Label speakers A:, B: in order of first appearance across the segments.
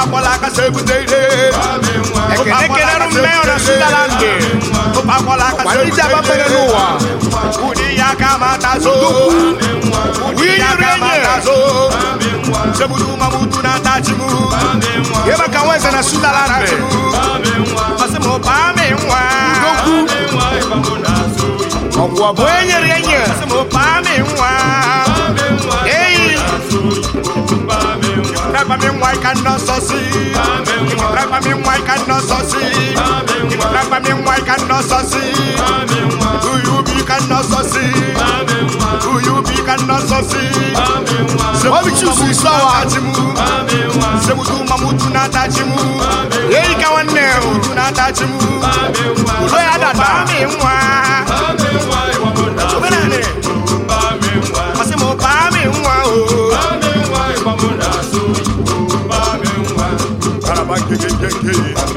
A: Tupakwala akasa ebute abafere n'ụwa. ya ka mata so. ya ka mata so. na ka na Masị mi nwa ị ka nọ sọsị ịkụtagwami nwa ị ka nọ sọsị ịkụtagwami nwa ị ka nọ sọsị uyu bi ka nọ sọsị sebutu mamutu Hey.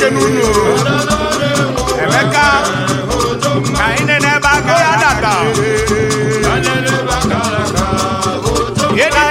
A: eche n'ụlọ emeka ka anyị nene ebe aka ya data ilu ka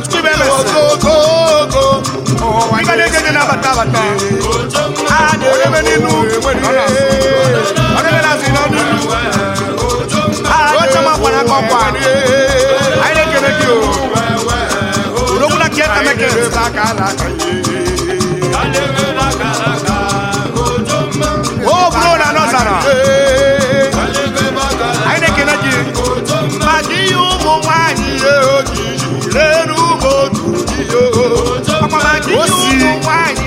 A: Ọchịchị bụ ogogogo Ịga na-eje eje na bata bata! A na-erebe n'inu Ọ na-ebe na-azụ A na-achọ ma kwana Anyị na-ekene gị o Urokwu na kieta mekere ebe a na-akọ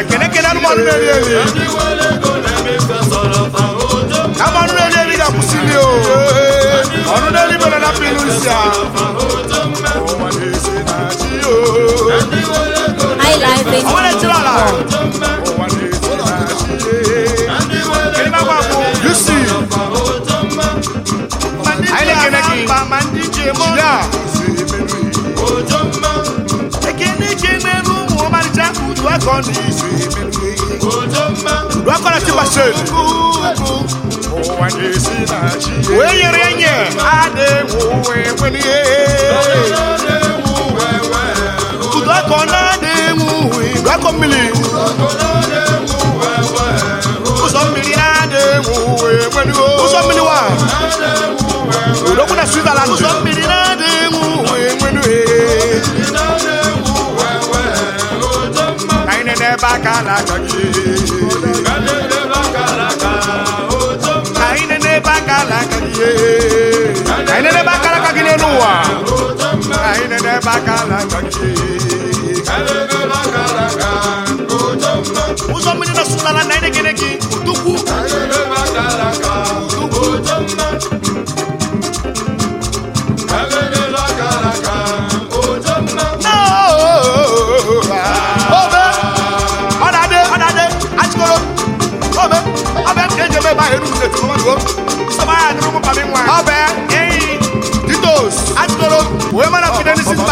A: ekene kene anụmanụ na-eri eri anụmanụ na-eri eri ga-akwụsị nri o ọrụ na-eri mere na pịlụ isi a ọnwere tiri ala lwakola tibaseni weyerenye udwakona demuwi lwakomili uzomili ademuwe uzo uzomili wa ulokuna switzerland uzomili ademuwe baka alaka ka anyị nene ebe aka alaka ihe ụwa ka anyị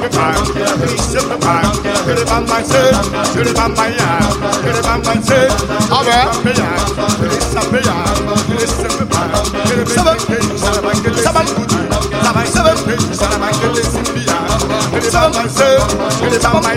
A: simplify, simplify. Get it on my set, get seven pages, seven pages.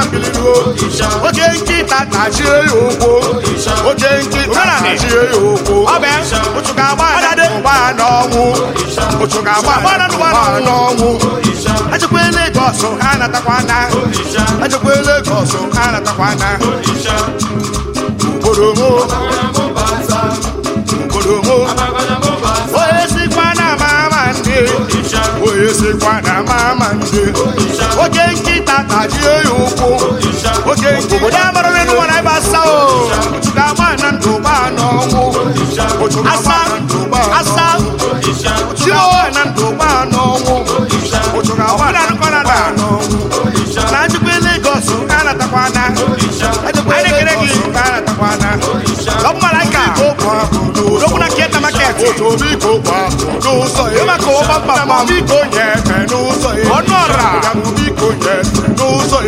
A: oke nkịta tajie ya ụkwụ oke nkịta tajie ya ụkwụ otu ga-agba ụgba n'ọnwụ agba ụgba n'ọnwụ ajụkwa Lagos ha Lagos ha natakwa ugboro esikwa na mama nje oke nkịta tajie ya ụkwụ oke obodo amarara n'ụwa na ebe asa o ga-agba na ndụgba n'ọnwụ asa asa chiowe na ndụgba n'ọnwụ ọbụna nụkọrọ na n'ọnwụ na njikwa Lagos a natakwana otomiko gba n'ụzọ ya na biko nye ebe n'ụzọ ya ọnụ biko nye ebe n'ụzọ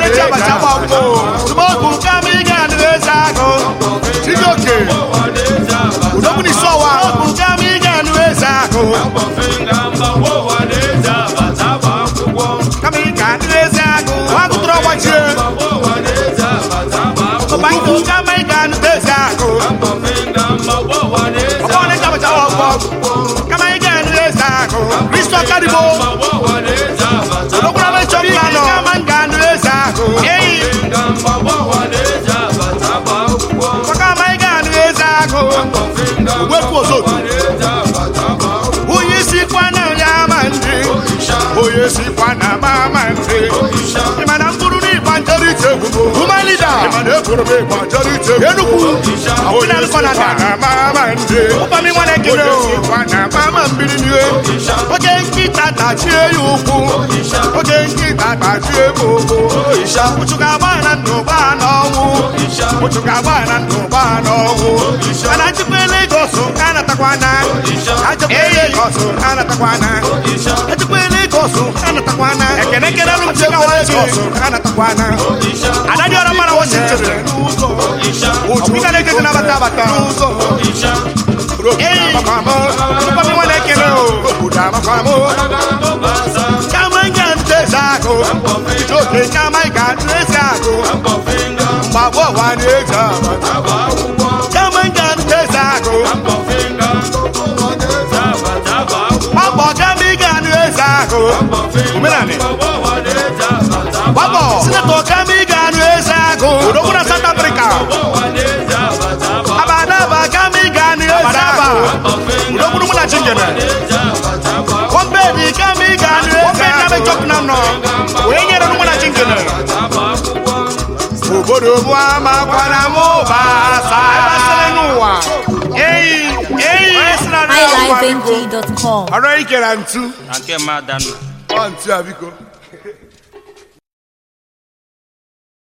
A: ya nye ya nye ụwa otu onye sikwa na ya ama ndị onye sikwa na ama ndị ịmana mkpụrụ na njeri njere ite egwu bụ ịmana ekwuru m ịgba njere enugwu onye na ama ndị ụkpami nwa na-ekele na ama mmiri oge nkịta tachie ya ụkwụ oge nkịta tachie m ụkwụ ụchụga agba na nnụba n'ọnwụ ụchụga agba na nnụba anatakwana ajọkwele ịkọsụ anatakwana ajọkwele ịkọsụ anatakwana ekenekere ana. ịkọsụ anatakwana adadị ọrụ mara wọchịchịrị ụjụ ịga na-ekete nabata abata Papa wanna kill you, Kama omenani gbapọ kami ga-anụ agụ na South Africa abadaba kami ga-anụ eze agụ liveng.com. Ara ikere ntu. Na nke mmadụ nna. Ọ ntu abiko